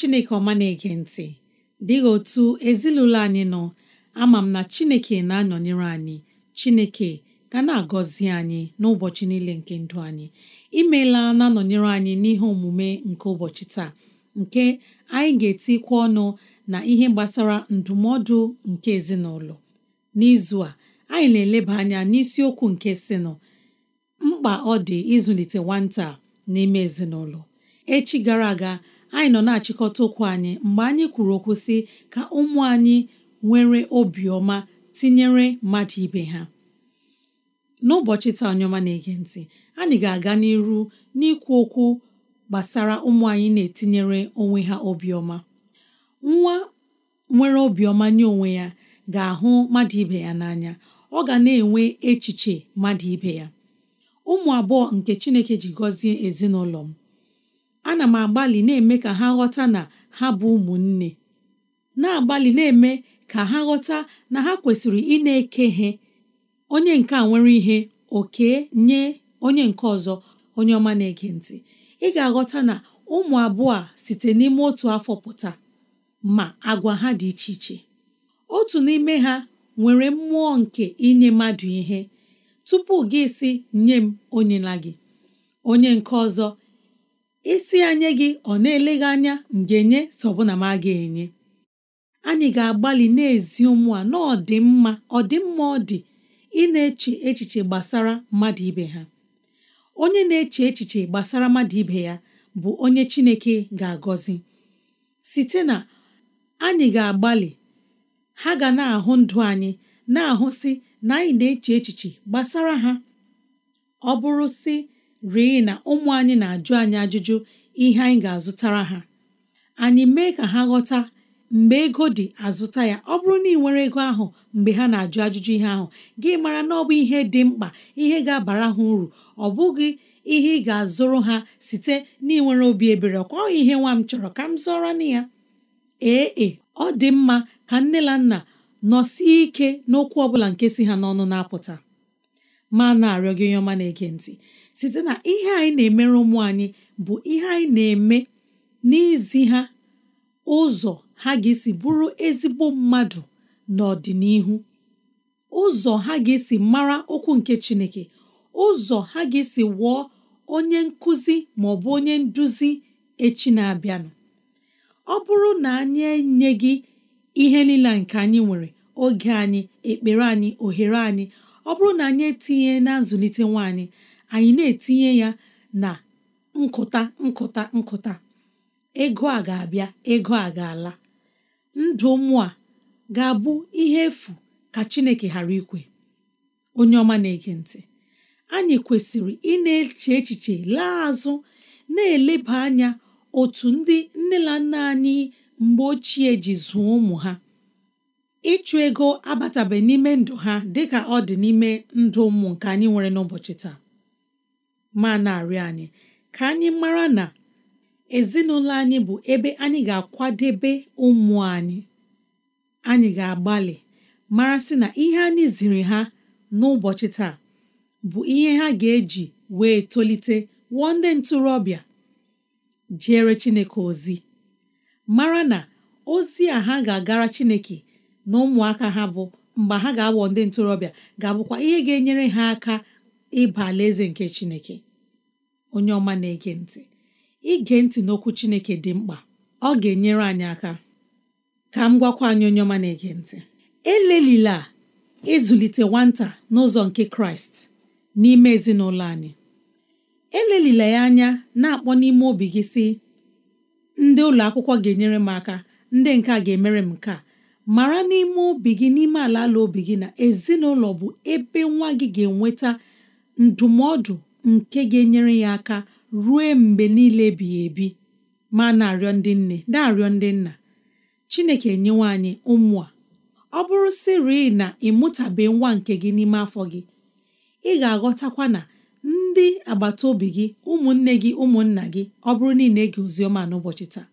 chineke ọma na-ege ntị dịghị otu ezinụlọ anyị nọ ama m na chineke na-anọnyere anyị chineke ga na-agọzi anyị n'ụbọchị niile nke ndụ anyị imela na-anọnyere anyị n'ihe omume nke ụbọchị taa nke anyị ga-etikwa ọnụ na ihe gbasara ndụmọdụ nke ezinụlọ n'izu a anyị na-eleba anya n'isiokwu nke sinụ mkpa ọ dị ịzụlite nwata n'ime ezinụlọ echi gara aga anyị nọ na-achịkọta okwu anyị mgbe anyị kwuru okwu sị ka ụmụ anyị nwere obiọma tinyere mmadụ ibe ha n'ụbọchị taa onye na-ege ntị anyị ga-aga n'iru n'ikwu okwu gbasara ụmụ anyị na-etinyere onwe ha obiọma nwa nwere obiọma nye onwe ya ga-ahụ mmadụ ibe ya n'anya ọ ga na-enwe echiche mmadụ ibe ya ụmụ abụọ nke Chineke ji gọzie ezinụlọ m ana m agbalị na-eme ka ha ghọta na ha bụ ụmụnne na-agbalị na-eme ka ha ghọta na ha kwesịrị ị na-eke ihe onye nke a nwere ihe oke nye onye nke ọzọ onye ọma na-ege ntị ị ga-aghọta na ụmụ abụọ a site n'ime otu afọ pụta ma agwa ha dị iche iche otu n'ime ha nwere mmụọ nke inye mmadụ ihe tupu gị si nye m onyela gị onye nke ọzọ isi anya gị ọ na gị anya ga-enye sọbụna ma a ga-enye anyị ga-agbalị na-ezi ụmụ a n'ọdịmma ọdịmma ọdị ọ ị na-eche echiche gbasara mmadụ ibe ha onye na-eche echiche gbasara mmadụ ibe ya bụ onye Chineke ga-agọzi site na anyị ga-agbalị ha ga na-ahụ ndụ anyị na ahụ si na anyị na-eche echiche gbasara ha ọ bụrụ sị rịị na ụmụ anyị na-ajụ anyị ajụjụ ihe anyị ga-azụtara ha anyị mee ka ha ghọta mgbe ego dị azụta ya ọ bụrụ na ị nwere ego ahụ mgbe ha na-ajụ ajụjụ ihe ahụ gị mara na ọ bụ ihe dị mkpa ihe ga-abara ha uru ọ bụghị ihe ị ga-azụrụ ha site n'inwere obi ebere ọkwa ihe nwa m chọrọ ka m zụọrọ na ya ee ọ dị mma ka nne na nna nọsie ike n'okwu ọ bụla nke si ha n'ọnụ na-apụta ma na-arịọ gị onye ọma na-ege ntị site na ihe anyị na-emere ụmụ anyị bụ ihe anyị na-eme n'izi ha ụzọ ha ga-esi bụrụ ezigbo mmadụ n'ọdịnihu ụzọ ha ga-esi mara okwu nke Chineke ụzọ ha ga-esi wụọ onye nkụzi ma ọ bụ onye nduzi echi na-abịanụ ọ bụrụ na anyị enye gị ihe niile nke anyị nwere oge anyị ekpere anyị ohere anyị ọ bụrụ na anyị etinye na nzụlite nwaanyị anyị na-etinye ya na nkụta nkụta nkụta ego a ga-abịa ego a ga-ala ndụ ụmụ a ga-abụ ihe efu ka Chineke ghara ikwe onye ọma na-ege ntị anyị kwesịrị ị na-eche echiche laa azụ na-eleba anya otu ndị nne na nna anyị mgbe ochie ji zụọ ụmụ ha ịchụ ego abatabe n'ime ndụ ha dịka ọ dị n'ime ndụ ụmụ nke anyị nwere n'ụbọchị taa ma na-arịọ anyị ka anyị mara na ezinụlọ anyị bụ ebe anyị ga-akwadebe ụmụ anyị anyị ga-agbalị mara sị na ihe anyị ziri ha n'ụbọchị taa bụ ihe ha ga-eji wee tolite wụọ ndị ntorobịa jere Chineke ozi mara na ozi a ha ga-agara Chineke na ụmụaka ha bụ mgbe ha ga-awọ ndị ntorobịa ga-abụkwa ihe ga-enyere ha aka ịba alaeze nke chineke onye ọma na-ege ntị ige ntị n'okwu chineke dị mkpa ọ ga-enyere anyị aka ka m gwakwa anyị onye ọma na-ege ntị elelila ịzụlite nwata n'ụzọ nke kraịst n'ime ezinụlọ anyị elelila ya anya na-akpọ n'ime obi gị si ndị ụlọ akwụkwọ ga-enyere m aka ndị nke a ga-emere m nke a mara n'ime obi gị n'ime ala ala obi gị na ezinụlọ bụ ebe nwa gị ga-enweta ndụmọdụ nke ga-enyere ya aka rue mgbe niile ebighị ebi ma na-arịọ ndị nne na-arịọ ndị nna chineke nyewe anyị ụmụ a ọ bụrụ sịrị na ịmụtabe nwa nke gị n'ime afọ gị ị ga-aghọtakwa na ndị agbata obi gị ụmụnne gị ụmụnna gị ọ bụrụ niile ege oziọma n'ụbọchị taa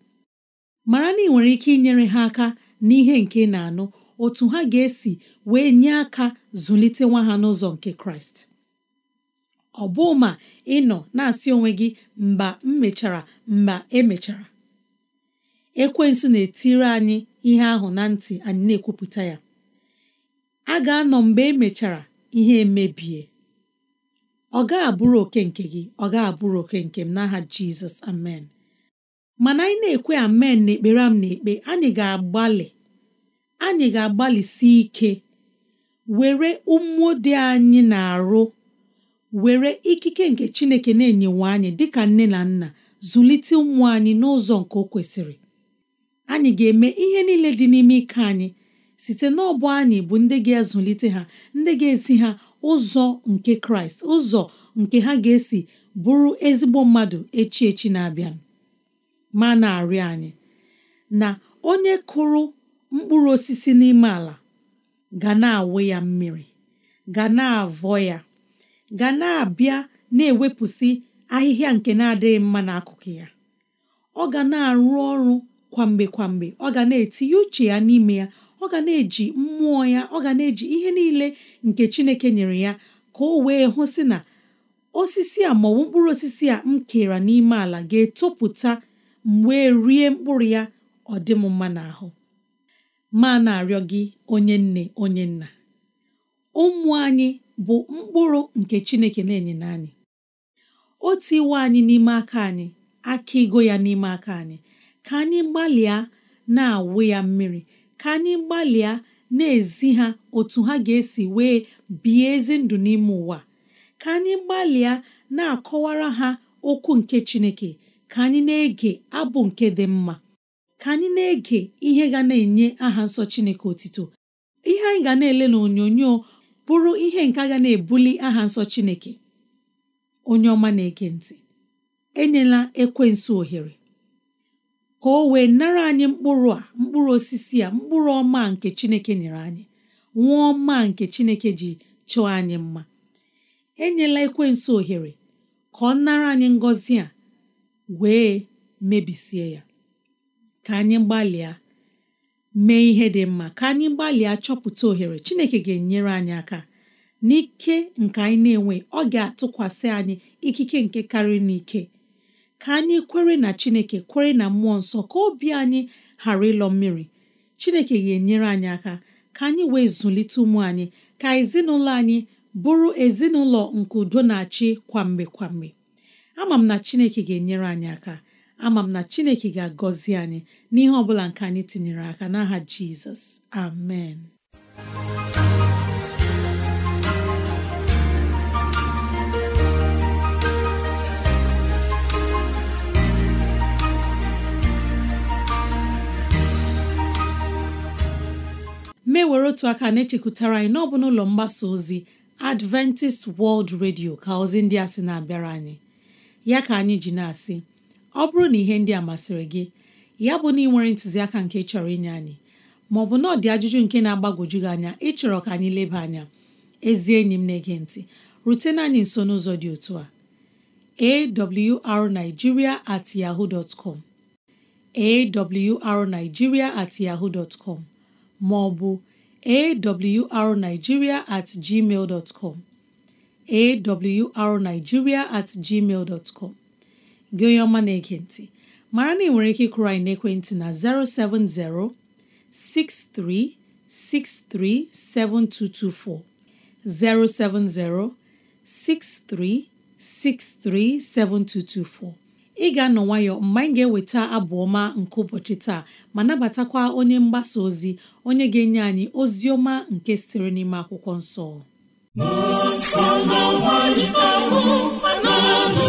mara na ị nwere ike inyere ha aka n'ihe nke na-anụ otu ha ga-esi wee nye aka zụlite nwa ha n'ụzọ nke kraịst ọ bụ ma ị nọ na-asị onwe gị mba m mechara mba emechara ekwensu na-etiri anyị ihe ahụ na ntị anyị na-ekwupụta ya a ga-anọ mgbe emechara ihe emebie ọ ga-abụrụ oke nke gị ọ ga-abụrụ oke nke m n'aha Jizọs amen mana anyị na-ekwe amen na ekpere m na anyị ga-agbalị anyị ga-agbalịsi ike were ụmụ dị anyị na-arụ were ikike nke chineke na-enyewe anyị dịka nne na nna zụlite ụmụ anyị n'ụzọ nke o kwesịrị anyị ga-eme ihe niile dị n'ime ike anyị site n'ọbụ anyị bụ ndị ga-ezụlite ha ndị ga-esi ha ụzọ nke kraịst ụzọ nke ha ga-esi bụrụ ezigbo mmadụ echi echi na-abịa ma na-arịọ anyị na onye kụrụ mkpụrụ osisi n'ime ala ga na-awụ ya mmiri ga na-avọ ya ga na-abịa na-ewepụsị ahịhịa nke na-adịghị mma n'akụkụ ya ọ ga na-arụ ọrụ kwamgbe kwamgbe ọ ga na-etinye uche ya n'ime ya ọ ga na-eji mmụọ ya ọ ga na-eji ihe niile nke Chineke nyere ya ka ọ wee hụsị na osisi a maọbụ mkpụrụ osisi a m kere n'ime ala ga-etopụta mgbe rie mkpụrụ ya ọ dị m mma n'ahụ ma na-arịọ gị onye nne onye nna ụmụ anyị bụ mkpụrụ nke Chineke na enye anyị o tiwe anyị n'ime aka anyị aka ego ya n'ime aka anyị ka anyị gbalịa na-awụ ya mmiri ka anyị gbalịa na-ezi ha otu ha ga-esi wee bie ezi ndụ n'ime ụwa ka anyị gbalịa na-akọwara ha okwu nke Chineke ka anyị na-ege abụ nke dị mma ka anyị na-ege ihe ga na-enye aha nsọ Chineke otito ihe anyị ga na-ele n'onyonyo bụrụ ihe nke agha na-ebuli aha nsọ Chineke onye ọma na-ege ntị enyela ekwensu ohere ka o wee nara anyị mkpụrụ mkpụrụ osisi a mkpụrụ ọma nke Chineke nyere anyị nwa ọma nke Chineke ji chọọ anyị mma enyela ekwensu ohere ka ọ nara anyị ngọzi a wee mebisie ya ka anyị gbalịa mee ihe dị mma ka anyị gbalịa chọpụta ohere Chineke ga-enyere anyị aka n'ike nke anyị na-enwe ọ ga-atụkwasị anyị ikike nke karịrị n'ike ka anyị kwere na Chineke kwere na mmụọ nsọ ka obi anyị ghara ịlọ mmiri Chineke ga-enyere anyị aka ka anyị wee zụlite ụmụ anyị ka ezinụlọ anyị bụrụ ezinụlọ nke udo na-achị kwamgbe kwamgbe ama m na Chineke ga-enyere anyị aka ama m na chineke ga-agọzi anyị n'ihe ọ bụla nke anyị tinyere aka n'aha jizọs amen mewere otu aka na-echekwutara anyị n'ọbụ n'ụlọ mgbasa ozi Adventist World Radio ka ozi ndị a sị na-abịara anyị ya ka anyị ji na-asị ọ bụrụ na ihe ndị a masịrị gị ya bụ na ị nwere ntụziaka nke chọrọ inye anyị maọbụ na ọ dị ajụjụ nke na-agbagwoju gị anya ịchọrọ ka anyị leba anya ezi enyi m na-ege ntị rutena anyị nso n'ụzọ dị otu a awrnigeria at yahoo dot com at yahoo dot com maọbụ awrnigeria at gmail dot com at gmail dot com gị onye ọma na-ege ntị mara na ị nwere ike ịkụrụ anyị n'ekwentị na 070 6363 7224 070 6363 7224 ị ga-anọ nwayọ mgbe anyị ga-eweta abụ ọma nke ụbọchị taa ma nabatakwa onye mgbasa ozi onye ga-enye anyị ozi ọma nke sitere n'ime akwụkwọ nsọ nsọ na-agba n'ime ahụ ma na-alụ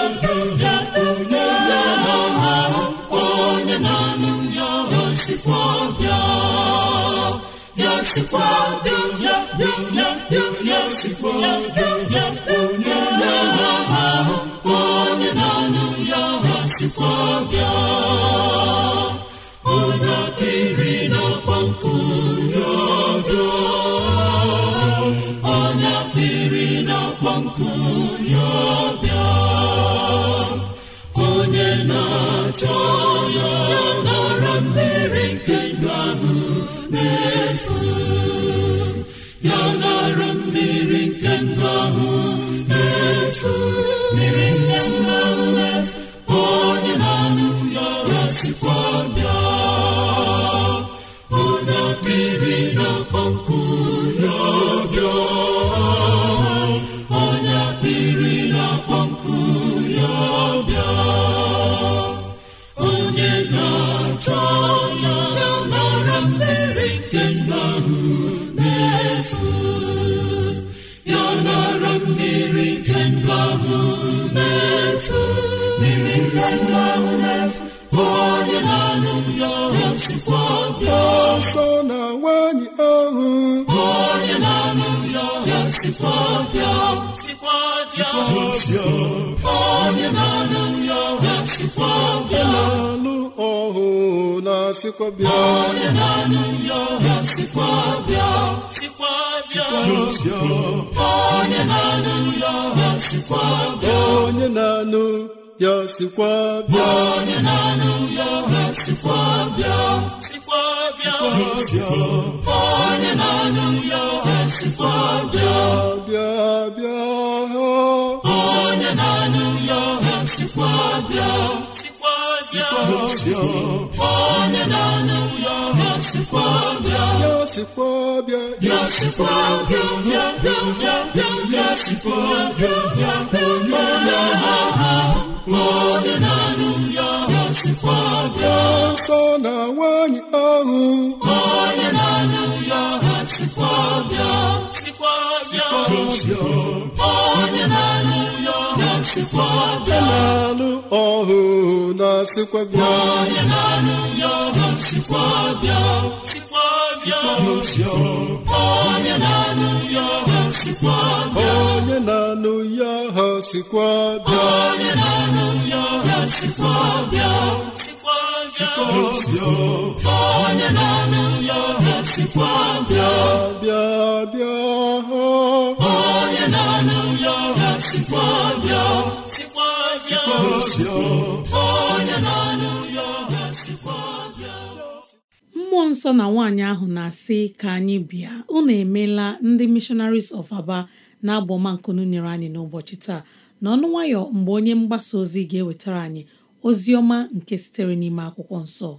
sikwa n'okwu sikwa bịa sikwa bịa onye na-ana nri ya sikwa bịa alụ ọhụ na sikwa bịa onye na-ana Ya ọha sikwa bịa sikwa bịa onye na-ana nri ọha sikwa bịa onye na-anụ ya sikwa bịa onye na-anụ ya ha sikwa bịa sikwa bịa onye na-anụ ya nsikwa bịa bịa bịa onye na-anụ ya onye na ya ya ya ya ya ya ya onye na ya sọ na nwaanyị ahụ onye na-anụ ya sikwa ọbịa sikwa ọbịa onye na-alụ ya sikwa ọbịa na-alụ ọhụ na-asịkwa bịa onye na-alụ ya sikwa ọbịa sikwa ọbịa onye na-alụ ya sikwa ọbịa onye na-alụ ya sikwa ọbịa onye na-alụ ya sikwa ọbịa onye na-anụ ya bịa bịa bịa onye na-anụ ya bịa sikwa bịa onye na-anụ ya bịa mmụọ nsọ na nwaanyị ahụ na-asị ka anyị bịa unu emeela ndị missionaries of aba na abọmankunu nyere anyị n'ụbọchị taa n'ọnụ nwayọ mgbe onye mgbasa ozi ga-ewetara anyị ozi ọma nke sitere n'ime akwụkwọ nsọ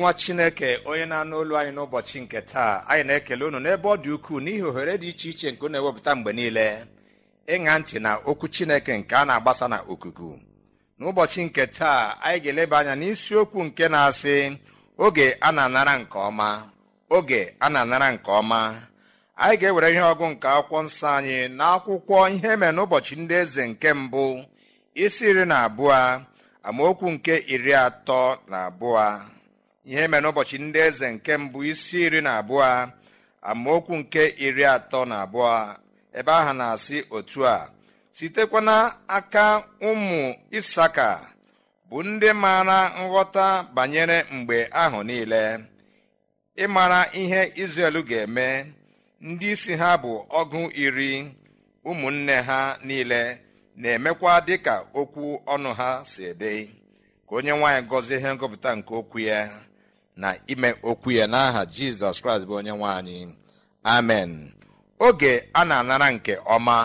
nwa chineke onye na-anụ olu anyị n'ụbọchị nke taa anyị na-ekele unu n'ebe ọ dị ukwuu n'ihi ohere dị iche iche nke na-ewepụta mgbe niile ịṅa ntị na okwu chineke nke a na-agbasa na okuku n'ụbọchị nke taa anyị ga-eleba anya n'isiokwu nke na-asị oge a na-anara nke ọma oge a na-anara nke ọma anyị ga-ewere ihe ọgụ nke akwụkwọ nsọ anyị na akwụkwọ ihe mere n'ụbọchị ndị eze nke mbụ isi iri na abụọ amaokwu nke iri atọ na abụọ ihe mere n'ụbọchị ndị eze nke mbụ isi iri na abụọ amaokwu nke iri atọ na abụọ ebe ahụ na-asị otu a sitekwa n'aka ụmụ isaka bụ ndị maara nghọta banyere mgbe ahụ niile ịmara ihe izrel ga-eme ndị isi ha bụ ọgụ iri ụmụnne ha niile na-emekwa dịka okwu ọnụ ha si dị ka onye nwaanyị gọzie ihe ngọpụta nke okwu ya na ime okwu ya n'aha jizọs kraịst bụ onye nwe amen oge a na-anara nke ọma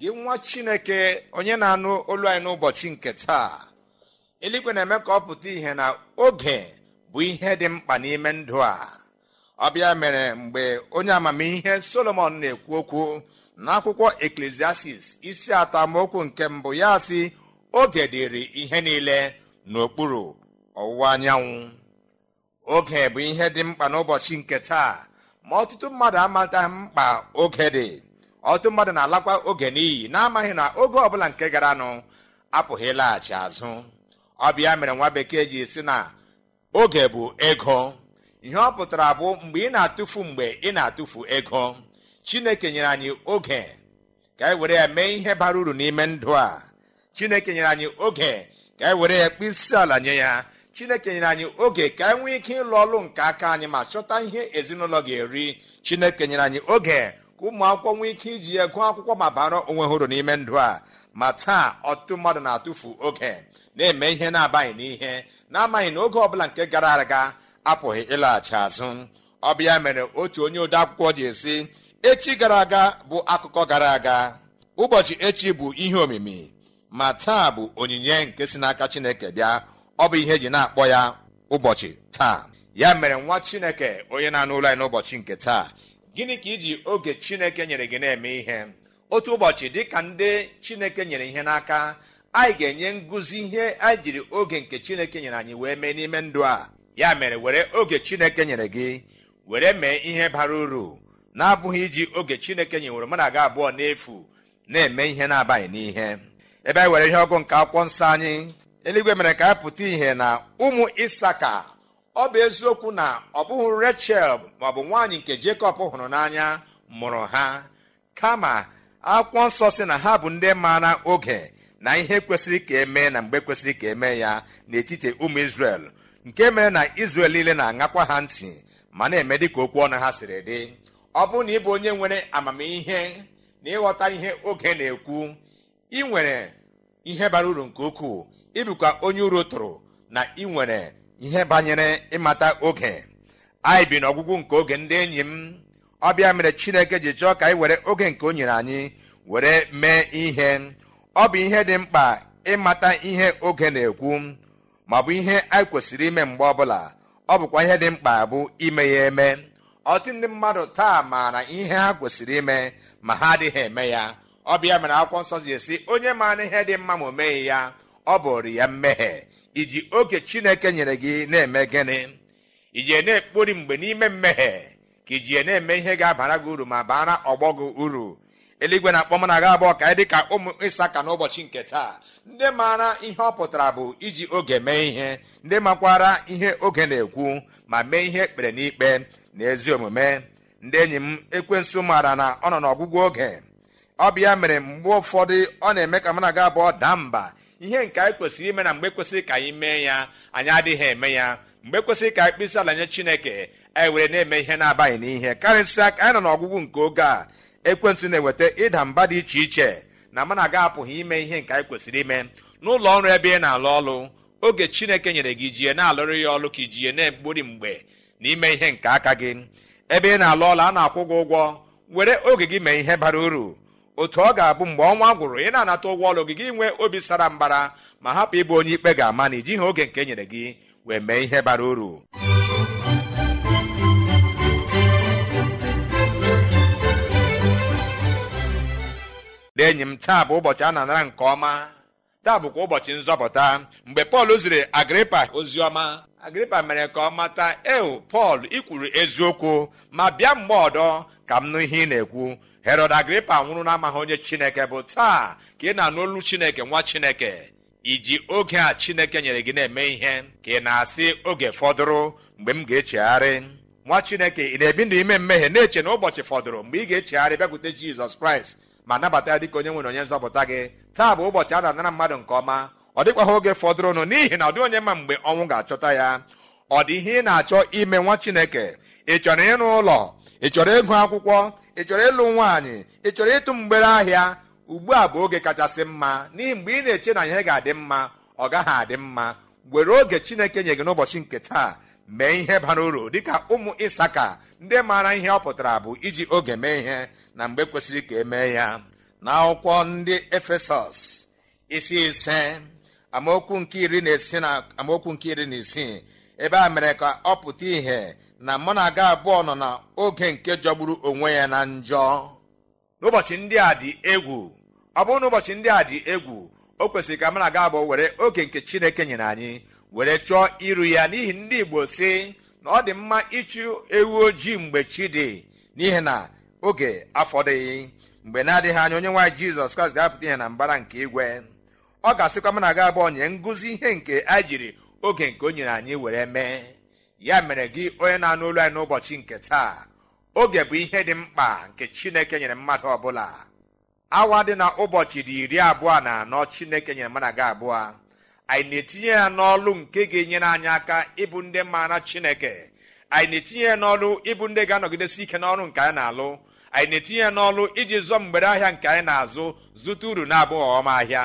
gị nwa chineke onye na-anụ olu anyị n'ụbọchị nke taa eluigwe na-eme ka ọ pụta ihe na oge bụ ihe dị mkpa n'ime ndụ a ọbịa mere mgbe onye amamihe solomon na-ekwu okwu n'akwụkwọ eklesiastis isi atọ amaokwu nke mbụ ya sị oge ihe niile n'okpuru ọwụwa anyanwụ oge bụ ihe dị mkpa n'ụbọchị nke taa ma ọtụtụ mmadụ amata mkpa oge dị ọtụtụ mmadụ na-alakwa oge n'iyi na-amaghị na oge ọbụla nke garanụ apụghị ịlaghachi azụ ọbịa mere nwa bekee ji si na oge bụ ego ihe ọ pụtara bụ mgbe ị na-atụfu mgbe ị na-atụfu ego chineke nyere anyị oge ka anyị were ya mee ihe bara uru n'ime ndụ a chineke nyere anyị oge ka anyị were ya isi ala nye ya chineke nyere anyị oge ka anyị nwee ike ịlụ ọlụ nke aka anyị ma chọta ihe ezinụlọ ga-eri chineke nyere anyị oge ka ụmụ akwụkwọ nwee ike iji ya gụọ akwụkwọ ma bara onwe hụrụ n'ime ndụ a ma taa ọtụtụ mmadụ na-atụfu oge na-eme ihe na-abaghị n'ihe na-amaghị na oge ọbụla nke gara aga apụghị ịlaghachi azụ ọbịa mere otu onye ode akwụkwọ ji esi echi gara aga bụ akụkọ gara aga ụbọchị echi bụ ihe omimi ma taa bụ onyinye nke si n'aka chineke bịa ọ bụ ihe eji na-akpọ ya ụbọchị taa ya mere nwa chineke onye na-anụ ụlọ anyị n'ụbọchị nke taa gịnị ka iji oge chineke nyere gị na-eme ihe otu ụbọchị dị ka ndị chineke nyere ihe n'aka anyị ga-enye ngụzi ihe anyị jiri oge nke chineke nyere anyị wee mee n'ime ndụ a ya mere were oge chineke nyere gị were mee ihe bara uru na-abụghị iji oge chineke nyewere mụ na abụọ n'efu na-eme ihe na abanye n'ihe ebe anyị were ihe ọgụ nke akwụkwọ nsọ anyị eluigwe mere ka a pụta ihe na ụmụ isaka ọ bụ eziokwu na ọ bụghị rechel maọbụ nwaanyị nke jekọb hụrụ n'anya mụrụ ha kama akwụkwọ nsọ si na ha bụ ndị maara oge na ihe kwesịrị ka emee na mgbe kwesịrị ka emee ya n'etiti ụmụ isrel nke mere na izrel niile na-aṅakwa ha ntị ma na-eme dịka okwu ọnụ ha siri dị ọ bụrụ na ị bụ onye nwere amamihe na ịghọta ihe oge na-ekwu ị nwere ihe bara uru nke ukwuu ịbụkwa onye uru tụrụ na ị nwere ihe banyere ịmata oge anyị bi n'ọgwụgwụ nke oge ndị enyi m ọbịa mere chineke ji chọọ ka anyị were oge nke o nyere anyị were mee ihe ọ bụ ihe dị mkpa ịmata ihe oge na-ekwu ma bụ ihe anyị kwesịrị ime mgbe ọbụla ọ bụkwa ihe dị mkpa bụ ime ya eme ọtụtụ ndị mmadụ taa maara ihe ha kwesịrị ime ma ha adịghị eme ya ọbịa mere akwụkwọ nsọ ji esi onye maara ihe dị mma ma o meghị ya ọ bụrụ ya mmehie iji oke chineke nyere gị na-eme gịnị iji na-ekpori mgbe n'ime mmehie ka ijie na-eme ihe ga-abara gị uru ma bara ọgbọ gị uru eluigwe na-akpọ na aga abụọ ka dị ka ụmụ ịsaka n'ụbọchị nke taa ndị maara ihe ọ pụtara bụ iji oge mee ihe ndị makwara ihe oge na-ekwu ma mee ihe ekpere n'ikpe na ezi omume ndị enyi m ekwensụ maara na ọ nọ n'ọgwụgwụ oge ọ bịa mere mgbe ụfọdụ ọ na-eme ka na aga abụọ daa mba ihe nke anyị kwesịrị ime na mgbe kwesịrị ka anyị mee ya anyị adịghị eme ya mgbe kwesịrị ka anyị ala nye chineke anyị e were na-eme ihe na-abaghị n'ihe karịsịa ka anyị nọ n'ọgwụgwụ nke oge a ekwentị na-eweta ịda mba dị iche iche na mana aga apụghị ime ihe nke anyị kwesịrị ime n'ụlọ ọrụ ebe ị na-alụ ọrụ oge chineke nyere gị jie na-alụrụ ya ọrụ ka ijie na-egburi mgbe na ime ihe nke aka gị ebe ị na-alụ ọrụ a na-akwụ gị ụgwọ were oge gị mee ihe bara uru otu ọ ga-abụ mgbe ọnwa gwụrụ ị na-anata ụgwọ ọrụ gị gị nwee obi sara mbara ma hapụ ịbụ onye ikpe ga-ama na ijighị oge nke e nyere gị wee mee ihe bara uru ndị m taa bụ ụbọchị a na-anara nke ọma taa bụkwa ụbọchị nzọpụta mgbe pọl ziri agripa ozi agripa mere ka ọ mata eo pọl ikwuru eziokwu ma bịa mgbe ọdọ ka m nụ ihe ị na-ekwu herod agripa nwụrụ amaghị onye chineke bụ taa ka ị na-anụ olu chineke nwa chineke iji oge a chineke nyere gị na-eme ihe ka ị na-asị oge fọdụrụ mgbe m ga-echegharị nwa chineke ị na-ebi ndụ ime mmehie na-eche na ụbọchị fọdụrụ mgbe ị ga-echegharị bịakwute jizọs kraịst ma nabata ya dịka onye nwere onye nzọpụta gị taa bụ ụbọchị a na-anara mmadụ nke ọma ọ dịkwaghị oge fọdụrụnụ n'ihi na ọ onye ma mgbe ọnwụ ga-achọta ya ọ dị ihe ị na-achọ ime nwa chineke ị chọrọ ịrụ ụlọ ị chọrọ ịgụ akwụkwọ ị chọrọ ịlụ nwaanyị ị chọrọ ịtụ mgbere ahịa ugbu a bụ oge kachasị mma n'ihi mgbe ị na-eche na ihe ga-adị mma ọ gaghị adị mma were oge chineke nye gị n'ụbọchị nke taa mee ihe bara uru dịka ụmụ ịsaka ndị maara ihe ọ pụtara bụ iji oge mee ihe na mgbe kwesịrị ka emee ya na akwụkwọ ndị efesọs isi ise amaokwu nke iri na isii ebe a mere ka ọ pụta ìhè na mụ na aga abụọ nọ na oge nke jọgburu onwe ya na njọ n'ụbọchị ndị a dị egwu ọ bụrụ na ụbọchị ndị a dị egwu o kwesịrị ka mụ na aga abụọ were oge nke chineke nyere anyị were chọọ iru ya n'ihi ndị igbo si na ọ dị mma ịchụ ewu ojii mgbe chi dị n'ihi na oge afọdịghị mgbe na-adịghị anya onye nwaanyị jizọs kraịst ga-apụta ihe na mbara nke igwe ọ ga-asịkwa mụ na aga abụọ nye ngụzi ihe nke a jiri oge nke o nyere anyị were mee ya mere gị onye na-anụ olu anyị n'ụbọchị nke taa oge bụ ihe dị mkpa nke chineke nyere mmadụ ọbụla awa dị na ụbọchị dị iri abụọ na anọ chineke nyere mmadụ aga abụọ anyị na-etinye ya n'ọlụ nke ga-enyere anyị aka ịbụ ndị maara chineke anyị na-etinye ya n'ọlụ ịbụ ndị ga-anọgidesi ike n'ọrụ nke anyị na-alụ anyị na-etinye ya n'ọlụ iji zụọ mgbere ahịa nke anyị na-azụ zụta uru na-abụghị ọma ahịa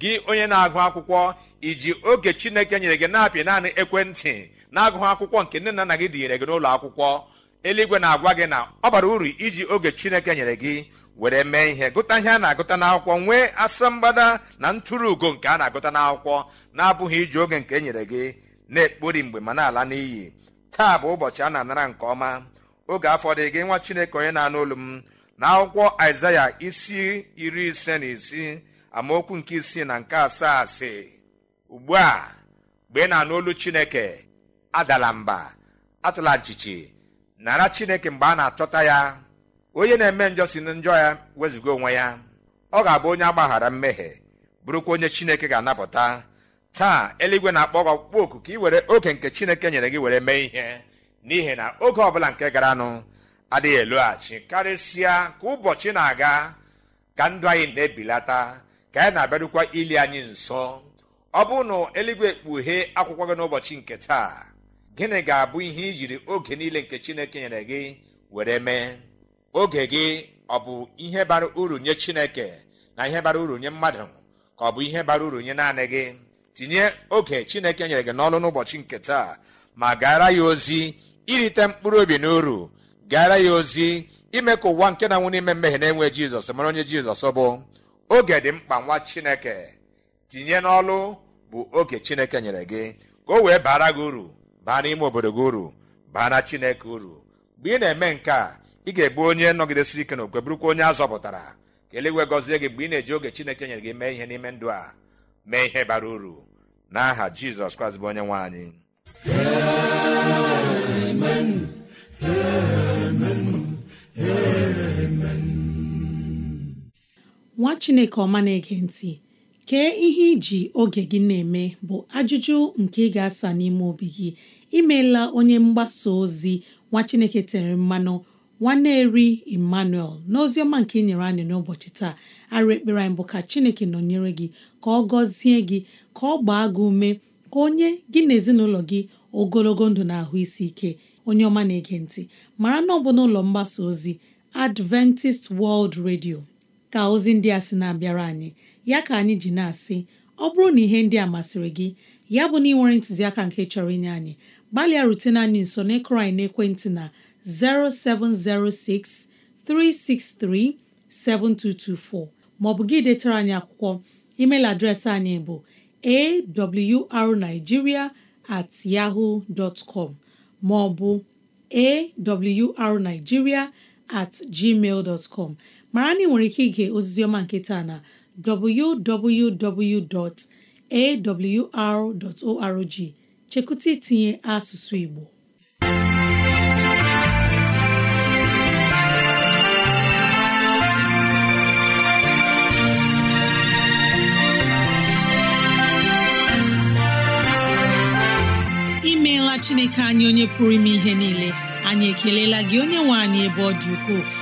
gị onye na-agụ akwụkwọ iji oge chineke nyere gị na-apị naanị ekwentị na-agụghị akwụkwọ nke nne na nna gị dịnyere gị n'ụlọ akwụkwọ eluigwe na-agwa gị na ọ bara uru iji oge chineke nyere gị were mee ihe gụta ihe a na-agụta n'akwụkwọ nwee asambada na ntụrụ ugo nke a na-agụta n'akwụkwọ na-abụghị iji oge nke e nyere gị na-ekpori mgbe ma na-ala n'iyi taa bụ ụbọchị a na-anara nke ọma oge afọ dị gị nwa chineke onye na-anụ olu m na akwụkwọ aịzaya isi iri ise na isii amaokwu nke isii na nke asaa sị ugbu a mgbe ị na-anụ olu chineke adala mba atụla nchichi nara chineke mgbe a na-achọta ya onye na-eme njọ si na njọ ya wezụga onwe ya ọ ga-abụ onye agbaghara mmehie bụrụkwa onye chineke ga-anapụta taa eluigwe na-akpọ gị ọkpụkpọ oku ka ị were oke nke chineke nyere gị were mee ihe n'ihi na oge ọbụla nke garanụ adịghị eloghachi karịsịa ka ụbọchị na-aga ka ndụ anyị na-ebilata ka anyị na-abịarukwa ili anyị nso ọ bụ na eluigwe kpughee akwụkwọ gị n'ụbọchị nke taa gịnị ga-abụ ihe i jiri oge niile nke chineke nyere gị were mee oge gị ọ bụ ihe bara uru nye chineke na ihe bara uru nye mmadụ ka ọ bụ ihe bara uru nye naanị gị tinye oge chineke nyere gị n'ọrụ n'ụbọchị nke taa ma gaara ya ozi irite mkpụrụ obi na uru gaara ya ozi ime ka ụwa nke na-anwụ n'ime mmehie na-enwe jizọs mara onye jizọs bụ oge dị mkpa nwa chineke tinye n'ọlụ bụ oge chineke nyere gị ka o wee bara gị uru baa n'ime obodo gị uru na chineke uru mgbe ị na-eme nke a ị ga egbu onye nọgidesiri ike na bụrụkwa onye a zọpụtara ka eluigwe gọzie gị mgbe ị na-eji oge chineke nyere gị mee ihe n'ime ndụ a mee ihe bara uru n'aha jizọs kraịst bụ onye nwe nwa chineke ọma na-ege ntị kee ihe iji oge gị na-eme bụ ajụjụ nke ị ga-asa n'ime obi gị imeela onye mgbasa ozi nwa chineke tere mmanụ nwanne eri emmanuel n'oziọma nke ị nyere anyị n'ụbọchị taa arụ ekpere anyị bụ ka chineke nọnyere gị ka ọ gọzie gị ka ọ gbaa gị ume ka onye gị na ezinụlọ gị ogologo ndụ na ahụ isi ike onye ọma na-ege ntị mara na ọ bụ n'ụlọ mgbasa ozi Adventist World Radio ka ozi ndị a sị na-abịara anyị ya ka anyị ji na-asị ọ bụrụ na ihe ndị a masịrị gị ya bụ na ị ntụziaka nke chọrọ inye anyị gbalịa rutena anyị nso n'ịkụrụ anyị n'ekwentị na 0706 363 7224 maọbụ gị detara anyị akwụkwọ email adreesị anyị bụ arigiria at yaho com maọbụ at gmail mara na ị nwere ike ige ozizi ọma nke taa na www.awr.org chekwụta itinye asụsụ Igbo imeela Chineke anyị onye pụrụ ime ihe niile anyị ekelela gị onye nwe anyị ebe ọ dị ukwuu